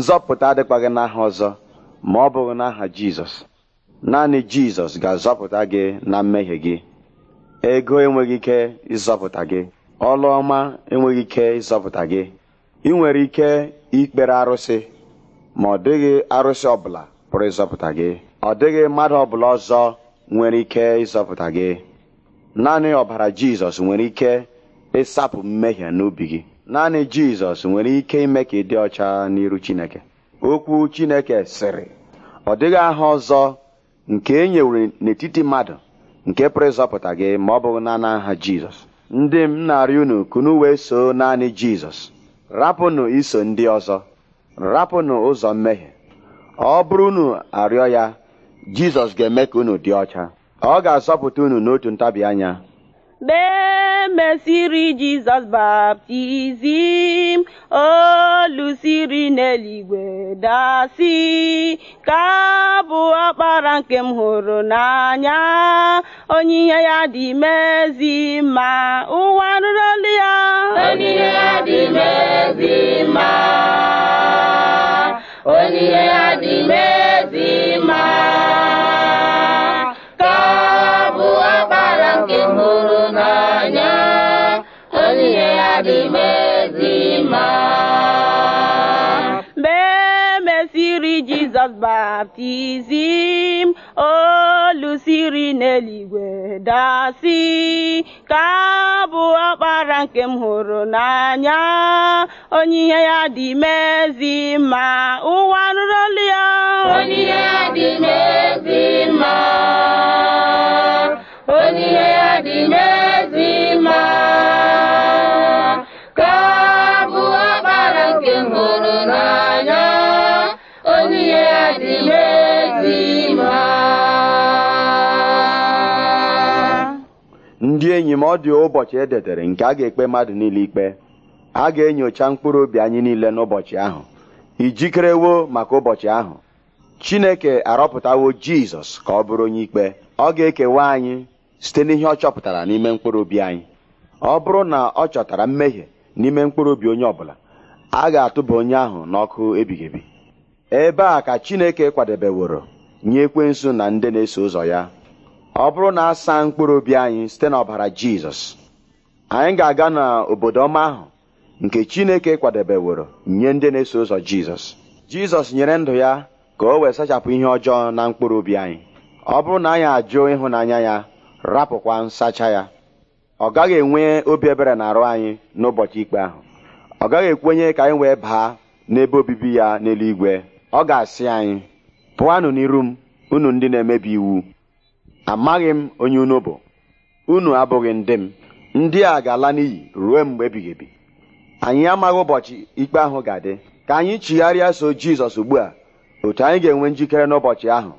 nzọpụta adịkwaghị n'aha ọzọ ma ọ bụghị n'aha jizọs naanị jizọs ga-azọpụta gị na mmehie gị ego enweghị ike ịzọpụta gị ọlụ ọma enweghị ike ịzọpụta gị ị nwere ike ikpere arụsị ma ọ dịghị arụsị ọbụla pụrụ ịzọpụta gị ọ dịghị mmadụ ọbụla ọzọ nwere ike ịzọpụta gị naanị ọbara jizọs nwere ike ịsapụ mmehie n'obi gị naanị jizọs nwere ike ime ka ị dị ọcha n'iru chineke okwu chineke sịrị ọ dịghị aha ọzọ nke e nyewere n'etiti mmadụ nke pụrụ ịzọpụta gị ma ọ bụghị naanị aha jizọs ndị m na-arịọ unu kunu wee so naanị jizọs rapụnụ iso ndị ọzọ rapụnụ ụzọ mmehie ọ bụrụ unu arịọ ya jizọs ga-eme ka unu dị ọcha ọ ga-azọpụta unu n'otu ntabi anya mesiri Jizọs baptizim olu siri n'eluigwe dasị ka bụ ọkpara nke m hụrụ n'anya onyinye ya dị mezi ma ụwa nụrụ ya onyinye ya dị mezi onyinye ya dị mezi baptizim olu siri n'eluigwe dasi ka bụ ọkpara nke m hụrụ n'anya onye ihe ya dị mezi ma ụwa nụrụ ya onye ihe ya dị mezi ma onye ihe ya dị mezi ndị enyi m ọ dị ụbọchị ededere nke a ga-ekpe mmadụ niile ikpe a ga-enyocha mkpụrụ obi anyị niile n'ụbọchị ahụ ijikerewo maka ụbọchị ahụ Chineke arọpụtawo Jizọs ka ọ bụrụ onye ikpe ọ ga-ekewa anyị site n'ihe ọ chọpụtara n'ime mkpụrụ obi anyị ọ bụrụ na ọ chọtara mmehie n'ime mkpụrụ obi onye ọbụla a ga-atụba onye ahụ n'ọkụ ebighị ebi ebe a ka Chineke kwadebeworo nye ekwensu na ndị na-eso ụzọ ya ọ bụrụ na asa mkpụrụ obi anyị site n'ọbara jizọs anyị ga-aga n'obodo ọma ahụ nke chineke kwadebeworo nye ndị na-eso ụzọ jizọs jizọs nyere ndụ ya ka o wee sachapụ ihe ọjọọ na mkpụrụ obi anyị ọ bụrụ na anyị ajụ ịhụnanya ya rapụkwa nsacha ya ọ gaghị enwe obi ebere na arụ anyị n'ụbọchị ikpe ahụ ọ gaghị ekwenye ka anyị wee baa n'ebe obibi ya n'eluigwe ọ ga-asị anyị pụanụ n'iru m unu ndị na-emebi iwu amaghị m onye unu bụ unu abụghị ndị m ndị a ga-ala n'iyi ruo mgbe ebighị ebi anyị amaghị ụbọchị ikpe ahụ ga-adị ka anyị chigharịa so jizọs ugbu a otu anyị ga-enwe njikere n'ụbọchị ahụ